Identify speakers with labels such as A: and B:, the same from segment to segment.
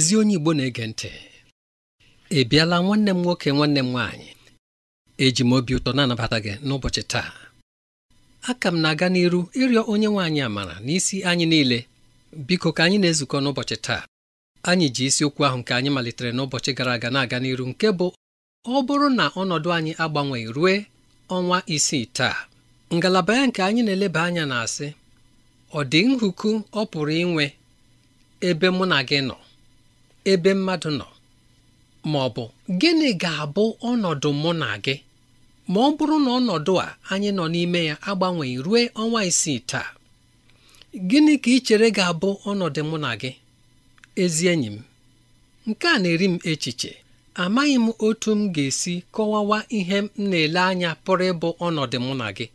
A: ezi onye Igbo na-ege ntị ị bịala nwanne m nwoke nwanne m nwaanyị eji m obi ụtọ na-anabata gị n'ụbọchị taa aka m na-aga n'iru ịrịọ onye nwaanyị amara n'isi anyị niile biko ka anyị na-ezukọ n'ụbọchị taa anyị ji isiokwu ahụ nke anyị malitere n'ụbọchị gara aga na-aga n'iru nke bụ ọ bụrụ na ọnọdụ anyị agbanweghị rue ọnwa isii taa ngalaba ya nke anyị na-eleba anya na-asị ọ dị nhuku ọ pụrụ inwe ebe mụ na gị nọ ebe mmadụ nọ ma ọ bụ gịnị ga-abụ ọnọdụ mụ na gị ma ọ bụrụ na ọnọdụ a anyị nọ n'ime ya agbanweghị ruo ọnwa isii taa gịnị ka ị chere ga-abụ ọnọdụ mụ na gị ezi enyi m nke a na-eri m echiche amaghị m otu m ga-esi kọwawa ihe m na-ele anya pụrụ ịbụ ọnọdụ mụ na gị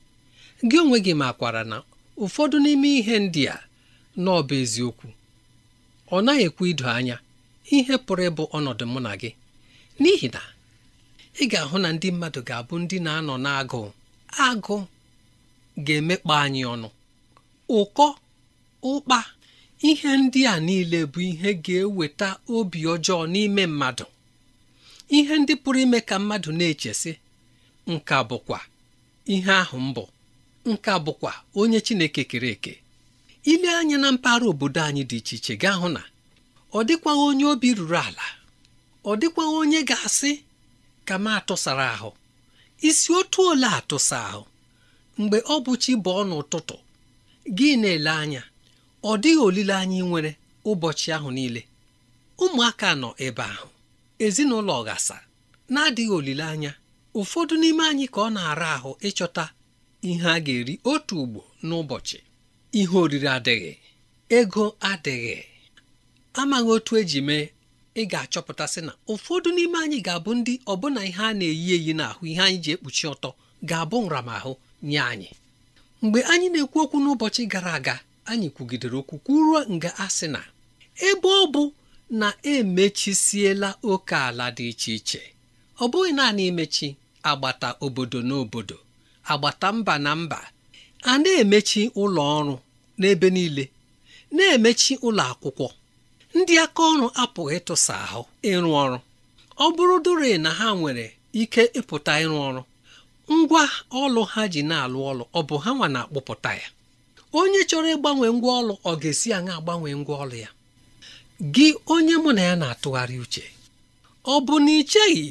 A: gị onwe gị makwara na ụfọdụ n'ime ihe ndị a bụ eziokwu ọ naghị ekwe ido anya ihe pụrụ ịbụ ọnọdụ mụ na gị n'ihi na ị ga-ahụ na ndị mmadụ ga-abụ ndị na-anọ n'agụụ agụ ga-emekpa anyị ọnụ ụkọ ụkpa ihe ndị a niile bụ ihe ga-eweta obi ọjọọ n'ime mmadụ ihe ndị pụrụ ime ka mmadụ na-echesị nka bụkwa ihe ahụ mbụ nka bụkwa onye Chineke kere eke ile anya na mpaghara obodo anyị dị iche iche gaa hụ na ọ dịkwaghị onye obi ruru ala ọ dịkwaghị onye ga-asị ka m atụsara ahụ isi otu ole atụsa ahụ mgbe ọ bụ chi bụ ọ n'ụtụtụ gị na-ele anya ọ dịghị olileanya ị nwere ụbọchị ahụ niile ụmụaka nọ ebe ahụ ezinụlọ ghasa na-adịghị olileanya ụfọdụ n'ime anyị ka ọ na-ara ahụ ịchọta ihe a ga-eri otu ugbo n'ụbọchị ihe oriri adịghị ego adịghị amaghị otu eji mee ị ga-achọpụtasị na ụfọdụ n'ime anyị ga-abụ ndị ọbụna ihe a na-eyi eyi n'ahụ ihe anyị ji ekpuchi ọtọ ga-abụ nramahụ nye anyị mgbe anyị na-ekwu okwu n'ụbọchị gara aga anyị kwugidere okwu kwuruo nga asị na ebe ọ bụ na emechisiela oke ala dị iche iche ọ bụghị naanị imechi agbata obodo na obodo agbata mba na mba a na-emechi ụlọ ọrụ n'ebe niile na-emechi ụlọ akwụkwọ ndị aka ọrụ apụghị ịtụsa ahụ ịrụ ọrụ ọ bụrụ dore na ha nwere ike ịpụta ịrụ ọrụ ngwa ọlụ ha ji na-alụ ọlụ ọ bụ ha nwa na-akpụpụta ya onye chọrọ ịgbanwe ngwa ọlụ ọ ga-esi aṅa agbanwe ngwa ọlụ ya gị onye mụ na ya na-atụgharị uche ọ bụ na icheghị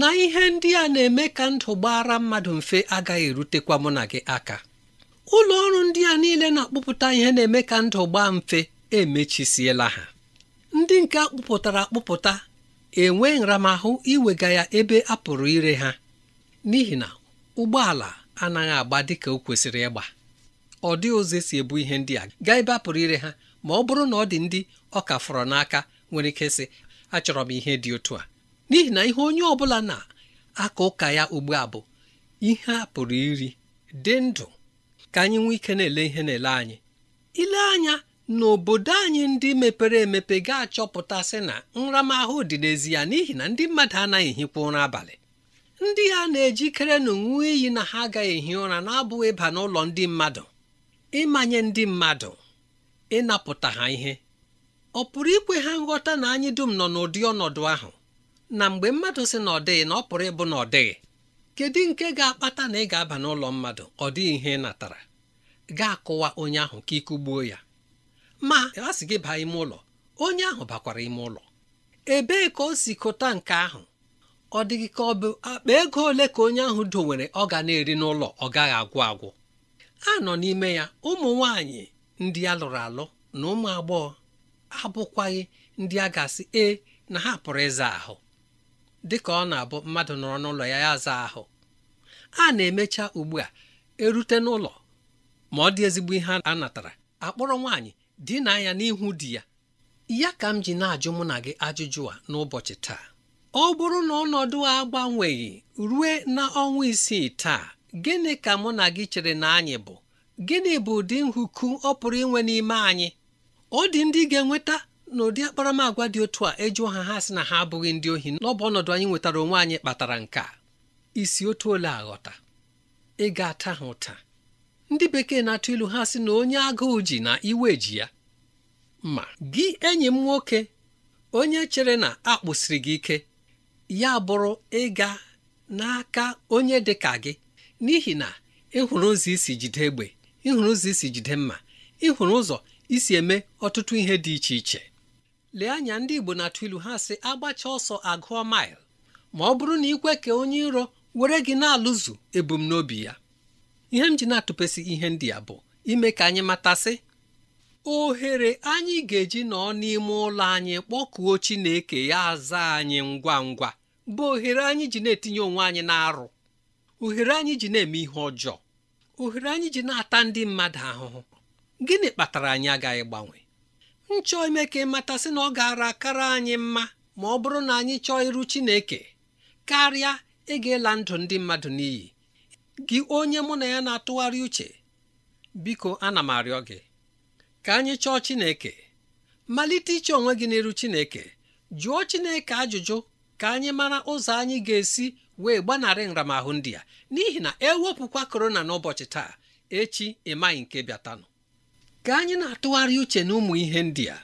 A: na ihe ndị a na-eme ka ndụ gbara mmadụ mfe agaghị erutekwa mụ na gị aka ụlọ ọrụ ndị a niile na-akpụpụta ihe na-eme ka ndụ gbaa mfe emechisiela ha ndị nke akpụpụtara akpụpụta enwe nramahụ iwega ya ebe a pụrụ ire ha n'ihi na ụgbọala anaghị agba dịka o kwesịrị ịgba ọ dị ụzọ si ebu ihe ndị a gaa ebe a pụrụ ire ha ma ọ bụrụ na ọ dị ndị ọ ka fọrọ n'aka nwere ike sị achọrọ m ihe dị otu a n'ihi na ihe onye ọ bụla na-aka ụka ya ugbu a bụ ihe a pụrụ iri dị ndụ ka anyị nwee ike na-ele ihe na-ele anyị ile anya n'obodo anyị ndị mepere emepe ga-achọpụta sị na nramahụ dị n'ezi ya n'ihi na ndị mmadụ anaghị ehikwa ụra abalị ndị ha na-ejikere na ṅụọ iyi na ha agaghị ehi ụra na-abụghị ịba n'ụlọ ndị mmadụ ịmanye ndị mmadụ ịnapụta ha ihe ọ pụrụ ikwe ha nghọta na anyị dum nọ n'ụdị ọnọdụ ahụ na mgbe mmadụ sị na ọ dịghị na ọ pụrụ ịbụ na ọ dịghị kedu nke ga-akpata na ị ga-aba n'ụlọ mmadụ ọ dịghị ihe ị natara ga-akụwa onye ahụ ka ike gbuo ya ma a sị gị baa ime ụlọ onye ahụ bakwara ime ụlọ ebee ka o si kụta nke ahụ ọ dịghị ka ọ bụ akpa ego ole ka onye ahụ dowere ọ ga na-eri n'ụlọ ọ gaghị agwụ agwụ a nọ n'ime ya ụmụ nwanyị ndị a lụrụ alụ na ụmụ agbọghọ abụkwaghị ndị a ga-asị e na ha pụrụ ịza ahụ dị ka ọ na-abụ mmadụ nọrọ n'ụlọ ya ya zaa ahụ a na-emecha ugbu a erute n'ụlọ ma ọ dị ezigbo ihe a natara akpọrọ nwaanyị di na ya n'ihu di ya ya ka m ji na-ajụ mụ na gị ajụjụ a n'ụbọchị taa ọ bụrụ na ọnọdụ a agbanweghị rue na ọnwa isii taa gịnị ka mụ na gị chere na anyị bụ gịnị bụ ụdị nhụku ọ pụrụ inwe n'ime anyị ọ dị ndị ga-enweta n'ụdị akparamagwa dị otu a eju ha ha sị na ha abụghị ndị ohi n'ọbụ ọnọdụ anyị nwetara onwe anyị kpatara nke a isi otu ole aghọta ị ga-ata ha ụta ndị bekee na-atụ ilu ha sị na onye agụụ ji na iwe ji ya ma gị enyi m nwoke onye chere na akpụsiri gị ike ya bụrụ ịga n'aka onye dị ka gị n'ihi na ịhụrụ ụzọ isi jide egbe ịhụrụ ụzọ isi jide mma ịhụrụ ụzọ isi eme ọtụtụ ihe dị iche iche lee anya ndị Igbo na-atụ ilu ha sị agbacha ọsọ agụọ mail ma ọ bụrụ na ikwe ka onye iro were gị na-alụzu ebumnobi ya ihe m ji na-atụpesị ihe ndị a bụ ime ka anyị matasị ohere anyị ga-eji nọ n'ime ụlọ anyị kpọkuo Chineke ya aza anyị ngwa ngwa bụ ohere anyị ji na-etinye onwe anyị na-arụ ohere anyị ji na-eme ihe ọjọọ ohere anyị ji na-ata ndị mmadụ ahụhụ gịnị kpatara anyị agaghị gbanwe m chọọ ime ka ịmatasị na ọ gara akara anyị mma ma ọ bụrụ na anyị chọọ iru Chineke karịa ịga ịla ndụ ndị mmadụ n'iyi gị onye mụ na ya na-atụgharị uche biko ana m arịọ gị ka anyị chọọ Chineke malite iche onwe gị n'iru Chineke jụọ Chineke ajụjụ ka anyị mara ụzọ anyị ga-esi wee gbanarị nramahụ ndị a n'ihi na ewepụkwa korona n'ụbọchị taa echi ịmaghị nke bịatanụ ka anyị na-atụgharị uche na ụmụ ihe ndị a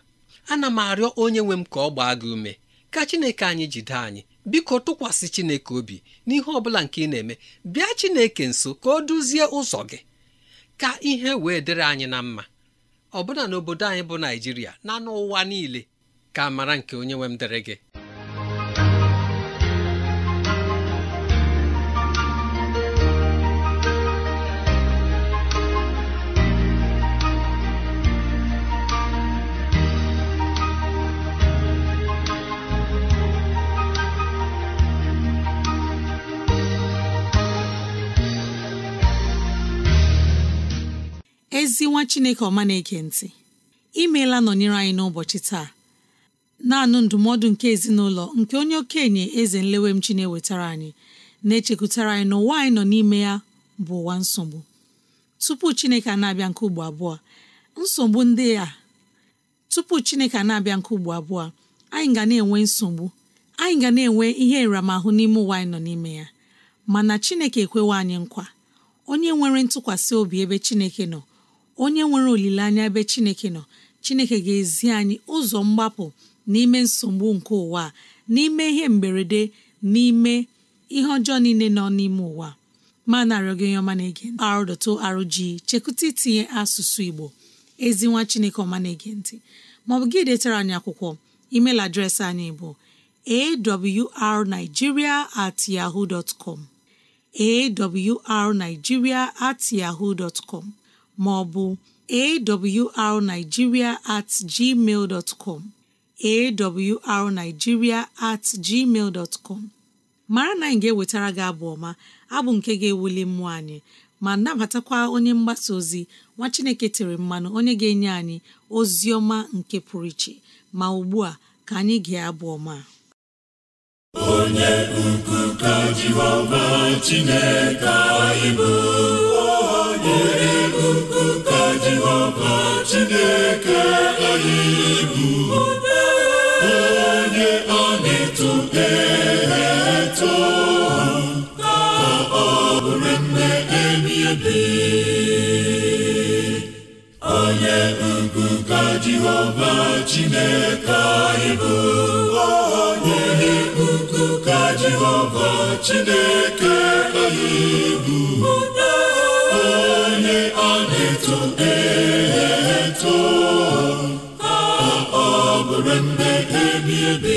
A: ana m arịọ onye nwe m ka ọ gbaa gị ume ka Chineke anyị jide anyị biko tụkwasị chineke obi n'ihe ọbụla nke ị na-eme bịa chineke nso ka o duzie ụzọ gị ka ihe wee dịrị anyị na mma na n'obodo anyị bụ naijiria na n'ụwa niile ka mara nke onye nwe m dịrị gị
B: ezi nwa chineke ọma na-ege ntị imeela nọnyere anyị n'ụbọchị taa na-anụ ndụmọdụ nke ezinụlọ nke onye okenye eze nlewemchi na-ewetara anyị na-echekwutara anyị na ụwa anyị nọ n'ime ya bụ ụwa nsogbu tupu chineke na-abịa nke ugbo abụọ nsogbu ndị a tupu chineke na-abịa nke ugbo abụọ anyị ga na-enwe nsogbu anyị ga na-enwe ihe nramahụ n'ime ụwa anyị nọ n'ime ya mana chineke ekwewa anyị nkwa onye nwere ntụkwasị obi ebe chineke nọ onye nwere olileanya ebe chineke nọ chineke ga-ezi anyị ụzọ mgbapụ n'ime nsogbu nke ụwa n'ime ihe mberede n'ime ihe ọjọọ niile nọ n'ime ụwa ma narịọ gị ọma na-ege arrg chekwụta itinye asụsụ igbo ezi nwa chineke ọma na-ege ntị maọbụ gị detara anyị akwụkwọ email adreesị anyị bụ awrnigeria at yahoo dot com awrnigeria at yahoo dot com maọbụ awrnigeria at gmail dot com at gmail dot com mara na anyị ga-ewetara gị abụ ọma abụ nke ga-ewuli mmụọ anyị ma nabatakwa onye mgbasa ozi nwa chineke tere mmanụ onye ga-enye anyị ozi ọma nke pụrụ iche ma ugbu a ka anyị gee abụ ọma
C: onye ukwu ka Chineke anyị bụ ka Jehova Chineke anyị bụ onye ọ na-eto eto ka ọ bụrụ nne ebi ebi onye ugwu ka Jehova Chineke anyị bụ onye ugwu ka Jehova Chineke anyị bụ eto ka ọ bụrụ mbe ebi ebi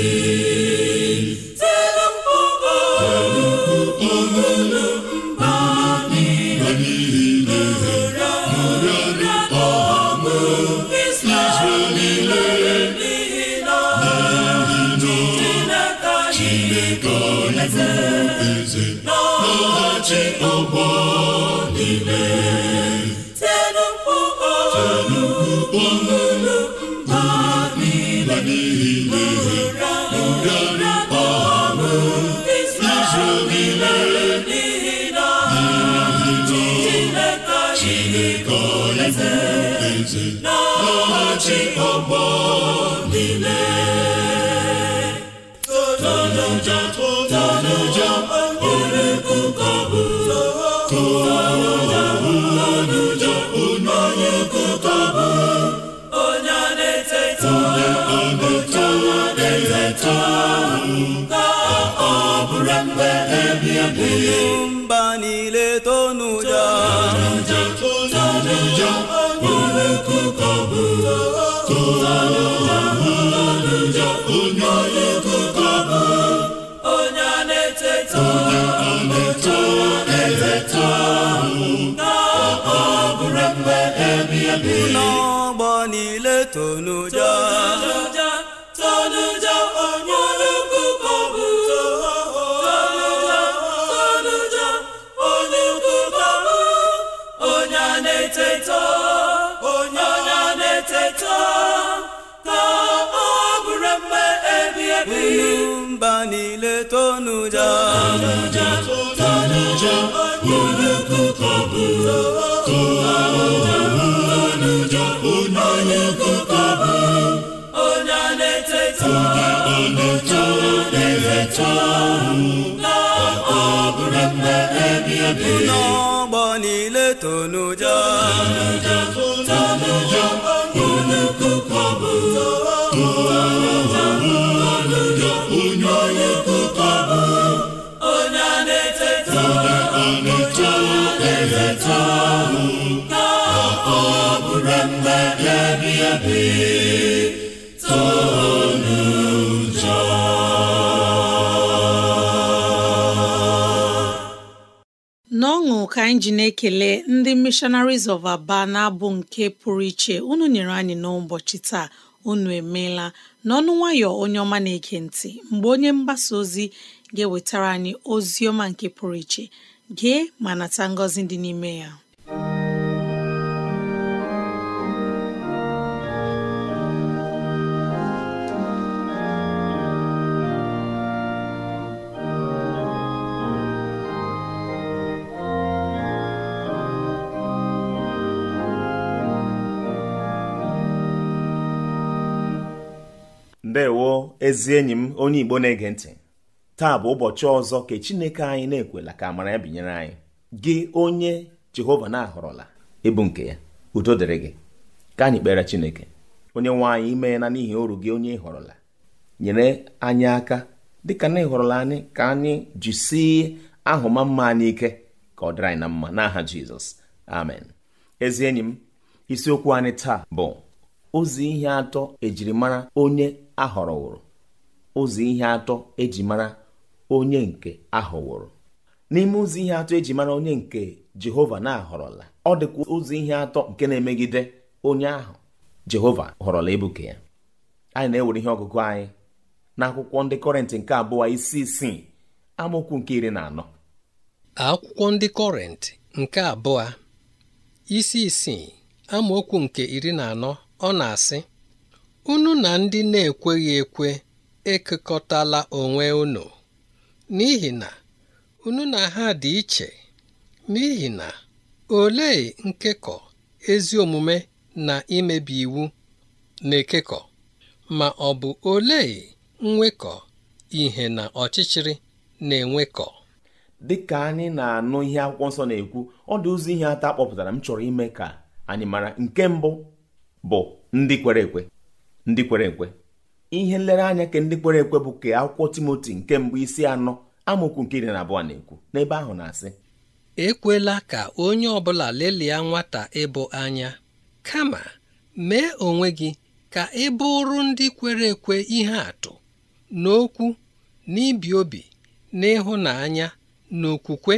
C: Chineke Olaeze na-achị ọgbọ niile nyumba niletonuja onye a na-eteta eteta na ọ bụrụ mgbe ebi n'ọgbọ niile tonuja cheta na ọ bụrụ mma ebi ebi n'ọgbọ niile tonuja tonuja unu kụkọ
B: ọṅụ ka anyị ji na-ekele ndị Missionaries of Aba na-abụ nke pụrụ iche unu nyere anyị n'ụbọchị taa unu emeela n'ọnụ nwayọ onye ọma na-ege ntị mgbe onye mgbasa ozi ga-ewetara anyị ozi ọma nke pụrụ iche gee ma nata ngọzi dị n'ime ya
D: ndewo ezi enyi m onye igbo na-ege ntị taa bụ ụbọchị ọzọ ka chineke anyị na-ekwela ka amara ya binyere anyị gị onye jehova na-ahọrọla ịbụ nke ya udo dịrị gị ka anyị kpere chineke onye nwe anyị imeela n'ihi oru gị onye ịhọrọla nyere anyị aka dịka na ịhọrọla anyị ka anyị jisie ahụma mma anyị ike ka ọ dịrị anyị na mma n'aha jizọs amen ezi enyi m isiokwu anyị taa bụ ozi ihe atọ ejirimara onye a họrọwụrụ ụzọ ihe atọ eji mara onye nke ahọwụrụ n'ime ụzọ ihe atọ eji mara onye nke Jehova na-ahọrọla ọ dịkwa ụzọ ihe atọ nke na-emegide onye ahụ Jehova họrọla ebuke ya anyị na-ewere ihe ọgụgụ anyị n'akwụkwọ ndị Kọrịntị nke abụọ isi isii amaokwu nke iri na anọ akwụkwọ
A: ndị Kọrịntị nke abụọ isi isii amaokwu nke iri na anọ ọ na-asị Unu na ndị na-ekweghị ekwe ekekọtala onwe unu, n'ihi na unu na ha dị iche, n'ihi na olee nkekọ ezi omume na imebi iwu na-ekekọ, ma ọ bụ olee nwekọ
D: ihe na ọchịchịrị na-enwekọ? Dị ka anyị na-anụ ihe akwụkwọ nsọ na-ekwu, ọ dị ụzọ ihe atọ akpọpụtara m chọrọ ime ka anyị mara nke mbụ bụ ndị kwere ekwe ndị kwere ekwe ihe nlereanya ke ndị kwere ekwe bụ ke akwụkwọ timoti nke mbụ isi anọ amaokwu nke iri na abụọ na-ekwu n'ebe ahụ na-asị ekwela ka onye ọ
A: bụla lelia nwata ịbụ anya kama mee onwe gị ka ị bụrụ ndị kwere ekwe ihe atụ n'okwu n'ibi obi n'ịhụnanya n'okwukwe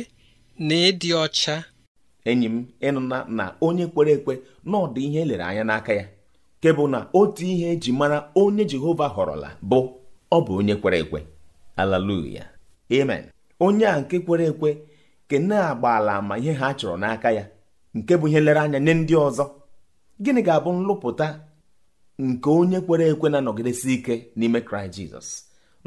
D: na ịdị ọcha enyi m ịnụna na onye kwere ekwe na ihe elere anya n'aka ya nke bụ na otu ihe eji mara onye Jehova họrọla bụ ọ bụ onye kwere ekwe Haleluya amen onye a nke kwere ekwe ke na-agba ala ma ihe ha chọrọ n'aka ya nke bụ ihe lere anya nye ndị ọzọ gịnị ga-abụ nlụpụta nke onye kwere ekwe na-anọgidesi ike n'ime kraịst jizọs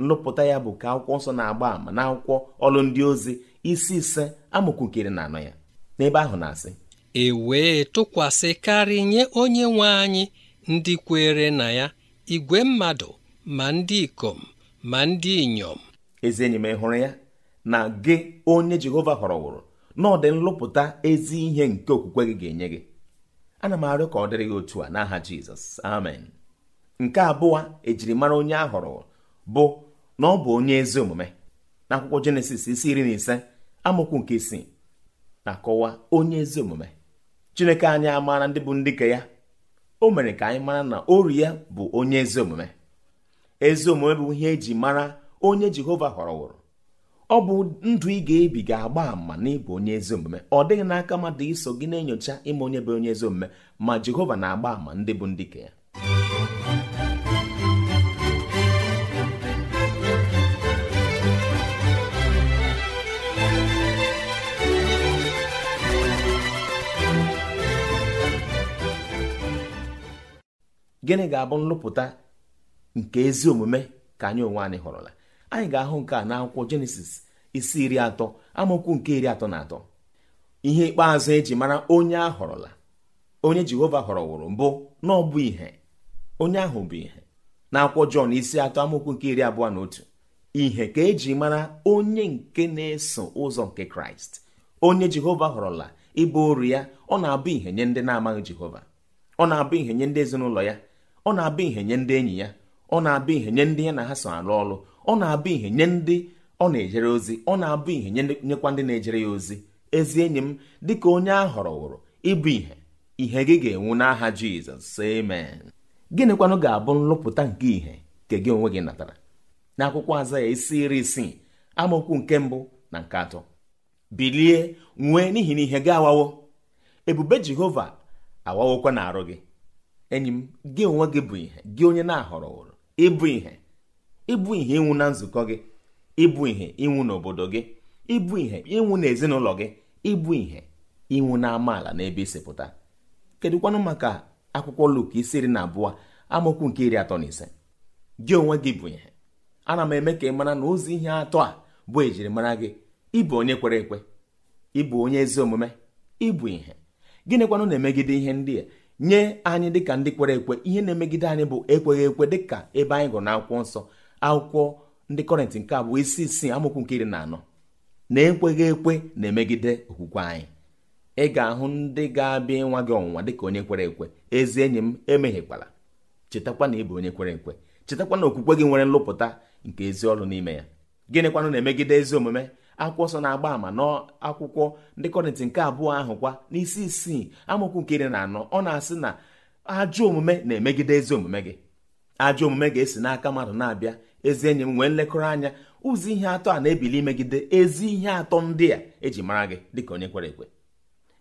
D: nlụpụta ya bụ ka akwụkwọ nsọ na-agba ama na akwụkwọ ọlụ ndị ozi isi ise amụkwukiri na anọ ya n'ebe ahụ na-asị
A: e wee tụkwasị karị nye onye nwe anyị ndị kwere na ya igwe mmadụ ma ndị ikom
D: ma ndị inyom ezi enyi m hụrụ ya na gị onye Jehova họrọwụrụ na ọ dị nlụpụta ezi ihe nke okwukwe gị ga-enye gị ana m arịọ ka ọ dịrị gị otu a n'aha Jizọs amen nke abụọ ejirimara onye a họrọ bụ na ọ bụ onye ezi omume n'akwụkwọ Jenesis isi iri na ise amụkwu nke isii na-akọwa onye ezi omume Chineke anyị amaara ndị bụ ndị nke ya o mere ka anyị mara na oru ya bụ onye ezi omume ezi omume bụ ihe eji mara onye jehova họrọwụrụ ọ bụ ndụ ị ga-ebi ga-agba ama na ịbụ onye ezi omume ọ dịghị n'aka mmadụ iso gị na-enyocha ịma onye bụ onye ezi omume ma jehova na-agba àmà ndị bụ ndị ka ya gịnị ga-abụ nlụpụta nke ezi omume ka anyị onwe anyị họrọla anyị ga-ahụ nke a n'akwụkwọ jenesis isi iri atọ amaokwu nke iri atọ na atọ ihe ikpeazụ eji mara onye a họrọla onye jehova họrọwụrụ mbụ na ọ bụ ihe onye ahụ bụ ihe n'akwụkwọ jọn isi atọ amaokwu nke iri abụọ na otu ihe ka eji mara onye nke na-eso ụzọ nke kraịst onye jehova họrọla ịbụ oru ya ọ na-abụ ihe nye ndị na-amaghị jehova ọ na-abụ ihe nye ndị ezinụlọ ya ọ na-abụ ihe nye ndị enyi ya ọ na-abụ ihe nye ndị ya na ha so arụ ọrụ ọ na-abụ ihe nye ndị ọ na-ejere ozi ọ na-abụ ihe nyekwa ndị na-ejere ya ozi ezi enyi m dịka onye a hụrụ wụrụ ịbụ ihe ihe gị ga-enwu n'aha jizọs amen gịnịkwanụ ga-abụ nlụpụta nke ihe nke gị onwe gị natara akwụkwọ aza ya isi iri isii amaokwu nke mbụ na nke atọ bilie nwee n'ihi na ihe gị awawo ebube jehova awawokwa na arụ gị enyi m gị onwe gị bụ ihe gị onye na-ahọrọ ụrụ ịbụ ihe ịbụ ihe ịnwụ na nzukọ gị ịbụ ihe ịnwụ n'obodo gị ịbụ ihe ịnwụ n'ezinụlọ gị ịbụ ihe ịnwụ na amaala na ebe isipụta kedụkwanụ maka akwụkwọ Luk isi iri na abụọ amaokwu nke iri atọ na ise gị onwe gị bụ ihe ana m eme ka ị mara na ozi ihe atọ a bụ ejirimara gị ịbụ onye kwere ekwe ịbụ onye ezi omume ịbụ ihe gịnịkwanụ na-emegide ihe ndị a nye anyị dịka ndị kwere ekwe ihe na-emegide anyị bụ ekweghị ekwe dịka ebe anyị gụrụ n'akwụkwọ nsọ akwụkwọ ndị kọrịntị nke abụọ isi isii amụkwu nke iri na anọ na ekweghị ekwe na-emegide okwukwe anyị ị ga-ahụ ndị ga-abịa ịnwa gị ọnwụnwa dịka onye kwere ekwe ezi enyi m emeghịkwala chetakwa na ị bụ onye kwere ekwe chetakwa na okwukwe gị nwere nlụpụta nke ezi ọrụ n'ime ya gịnịkwanụ na-emegide ezi omume akwụkwọ nsọ na-agba ama n'akwụkwọ ndị kọrịntị nke abụọ ahụ kwa n'isi isii amụkwu nke iri na anọ ọ na-asị na ajọ omume na-emegide ezi omume gị ajọ omume ga-esi n'aka mmadụ na-abịa ezi enyi m nwee nlekọrọ anya ụzọ ihe atọ a na-ebili imegide ezi ihe atọ ndị a eji mara gị dịka onye kwere ekwe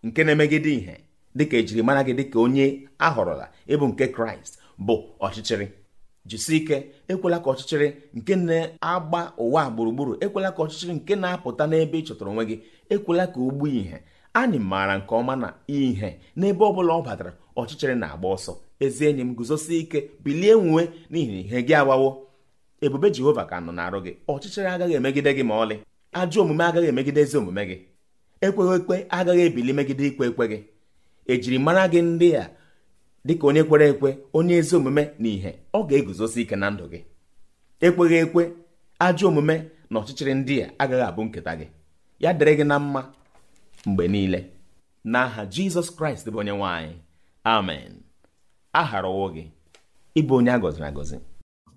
D: nke na-emegide ihe dịka ejiri mara gị dịka onye ahọrọla ịbụ nke kraịst bụ ọchịchịrị jisie ike ekwela ka ọchịchịrị nke na-agba ụwa gburugburu ekwela ka ọchịchịrị nke na-apụta n'ebe ị chọtara onwe gị ekwela ka o gbuo ihe anyị maara nke ọma na ihe n'ebe ọ bụla ọ batara ọchịchịrị na-agba ọsọ ezi enyi m guzosi ike bilie nwuwe n'ihi ihe gị agbawo ebube jehova ka nọ na-arụ gị ọchịchịrị agaghị emegide gị ma ọlị ajọ omume agaghị emegide ezi omume gị ekweghị ekwe agaghị ebili megide ikwe ekwe gị mara gị ndị a dịka onye kwere ekwe onye ezi omume na ìhè ọ ga-eguzosi ike na ndụ gị ekweghị ekwe ajọ omume na ọchịchịrị ndị a agaghị abụ nketa gị ya dịrị gị na mma mgbe niile n'aha jizọs kraịst bụ onye nwanyị amen a ụwa gị ịbụ onye a gọziri agọzi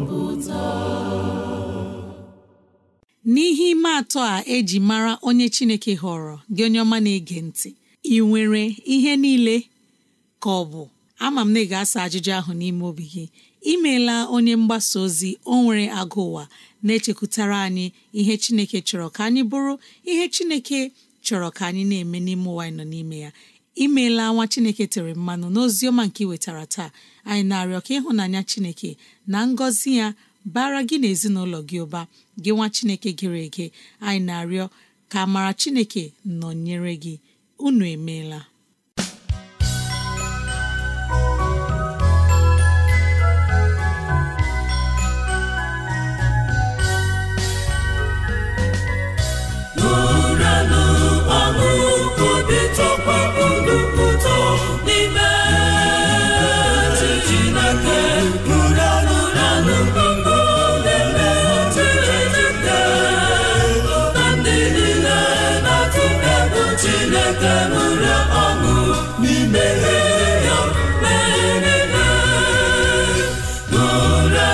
B: n'ihe ime atọ a eji mara onye chineke họrọ gị onye ọma na-ege ntị ị nwere ihe niile ka ọ bụ ama m na ị ga-asa ajụjụ ahụ n'ime obi gị imeela onye mgbasa ozi o nwere agụ ụwa na-echekwutara anyị ihe chineke chọrọ ka anyị bụrụ ihe chineke chọrọ ka anyị na-eme n'ime ụwa anyị nọ n'ime ya imeela nwa chineke tere mmanụ n'ozi ọma nke iwetara taa anyị na-arịọ ka ịhụnanya chineke na ngọzi ya bara gị na gị ụba gị nwa chineke gịrị ege anyị na-arịọ ka amara chineke nọnyere gị unu emeela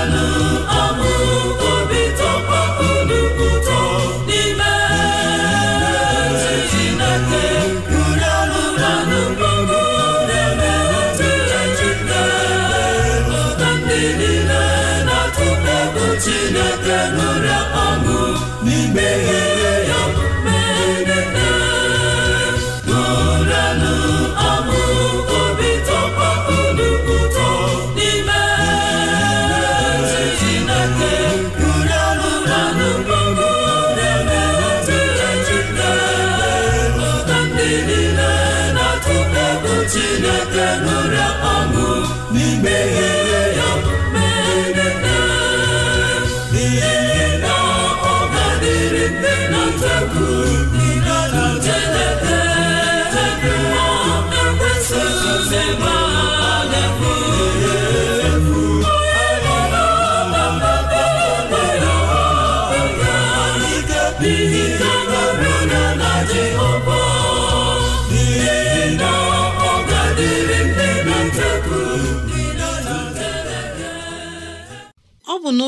C: Hallelujah. E.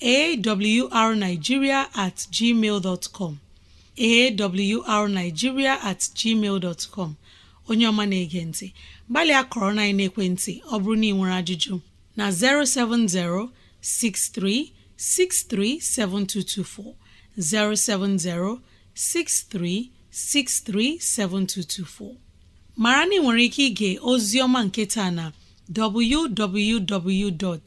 B: arnigiria at gmail com at gmail com onye ọma na-ege ntị gbalịa kọrọ na ekwentị ọ bụrụ na ị nwere ajụjụ na 070 7224. 070-6363-7224 mara na nwere ike ịga ozi ọma nketa na www.